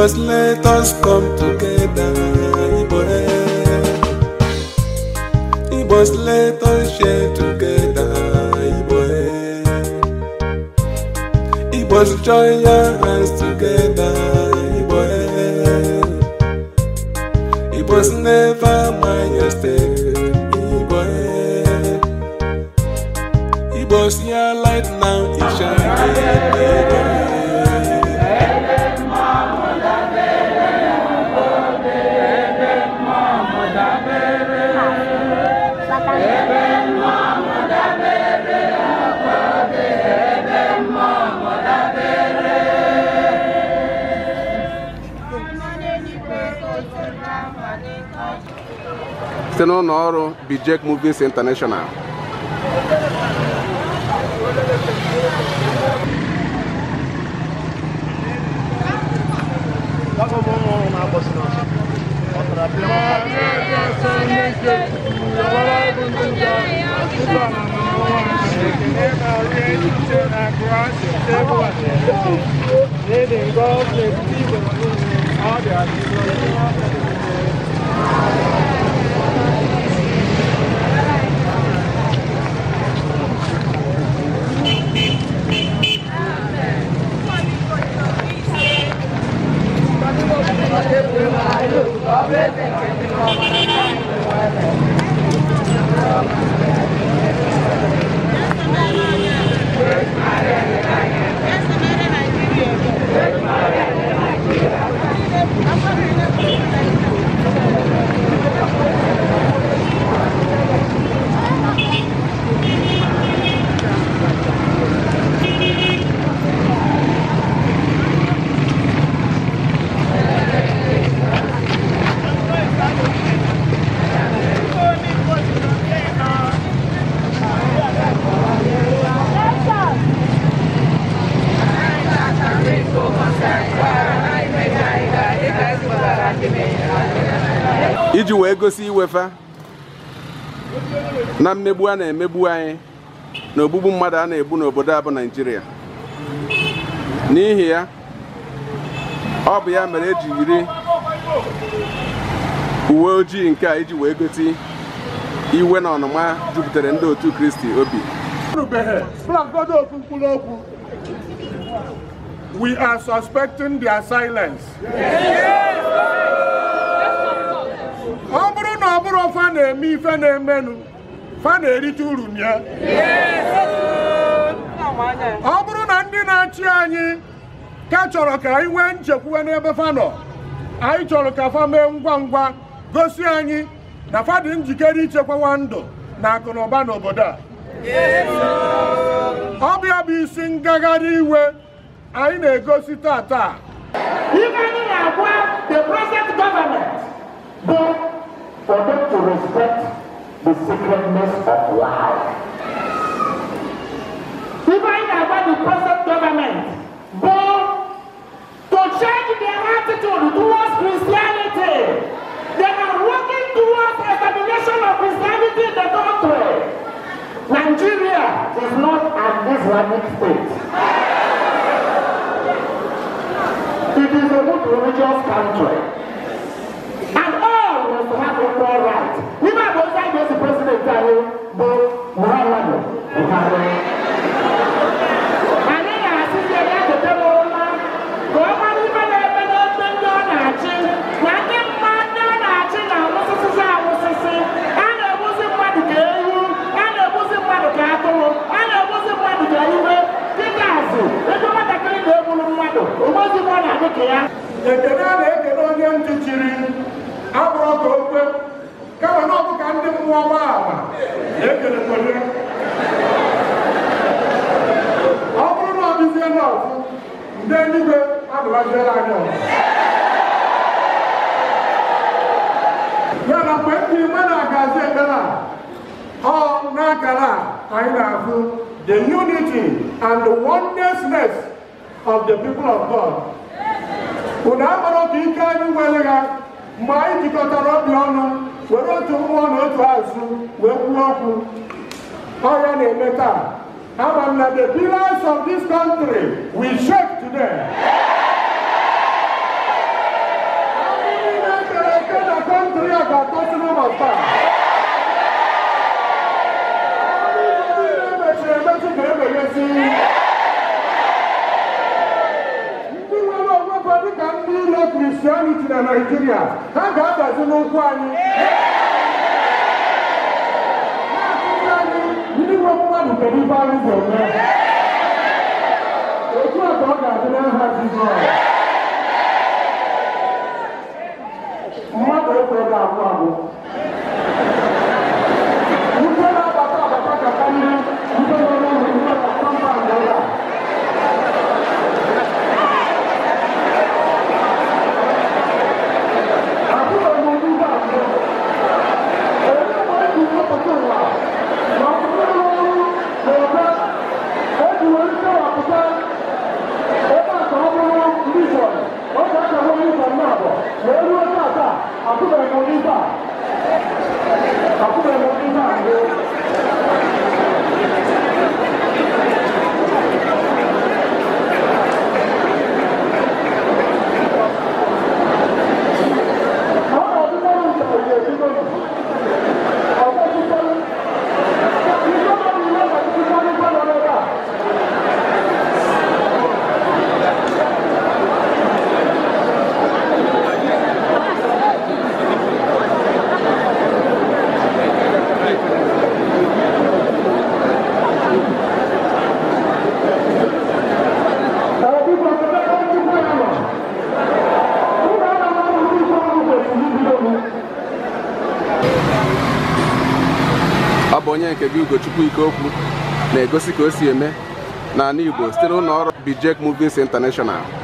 was let us come together. It was let us share together. It was join your hands together. It was never site n'ụlọ ọrụ Movies International na-egosi iwefa na mmegbu a na-emegbu anyị na ogbugbu mmadụ a na-egbu n'obodo a bụ n'ihi ya ọ bụ ya mere eji yiri uwe ojii nke a iji wee gosi iwe na ọnụma jupụtara ndị otu Kristi obi We are suspecting their silence. ọbụrụ ofe a na-eme ife na-emenụ fa na-erite uru ya ọ bụrụ na ndị na-achị anyị ka chọrọ ka anyị nwee nchekwuwe n'ebe fa anyị chọrọ ka fa mee ngwa ngwa gosi anyị na fa dị njikere ichekwawa ndụ na akụnụba n'obodo a ọ bụ ya bụ isi ngagharị iwe anyị na-egosi taa respect the sacredness of life. Even about the present government, but to change their attitude towards Christianity, they are working towards establishment of Christianity in the country. Nigeria is not an Islamic state. It is a good religious country. Bukhari bu Muhammadu Bukhari. Anyị na-asịzie ya gotere ụma ka ọ mara ibe na-eme n'ebe ndị ọ na-achị na ndị mma ndị ọ na-achị na awụsịsịsị awụsịsị a na-egbuzi mmadụ ka ewu a na-egbuzi mmadụ ka atụrụ a na-egbuzi mmadụ ka iwe dịka azụ ego nwatakịrị na-egburu mmadụ ogbozi ọ na-adị ka ya ekene a na-ekene onye ntị chiri abụrụ ka okwe kama na ọbụ ka ndị mmụọ gbaama na-ekerekọrị ọ bụrụ na ọ dịzie n'ọfụ ndị eluigwe adụbaziere anyị ọzọ ya na mgbe ndị igbe na-agazi ekpere a ọ n'akara a anyị na-ahụ the unity and the onenessness of the people of God unu amara otu ike anyị nwere ha mgbe anyị jikọtara obi ọnụ were otu mmụọ na otu azụ wee kwuo okwu ọrịa na-eme taa ama m na the pillars of this country will shake today ndị na-ekere eke na kọntrị a ga-atọsịrị ụbọchị taa ndị na-emechiri emechi ga-emeghezi Christianity na Nigeria ha ga-adazi n'ụkwụ anyị ndị nwe mmadụ kedu ife anyị ga-eme otu a ọ ga-adị n'aha Jizọs ha bụ onye nke gị Ugochukwu okwu na-egosi ka o si eme n'ala Igbo site n'ụlọ ọrụ Bijek Movies International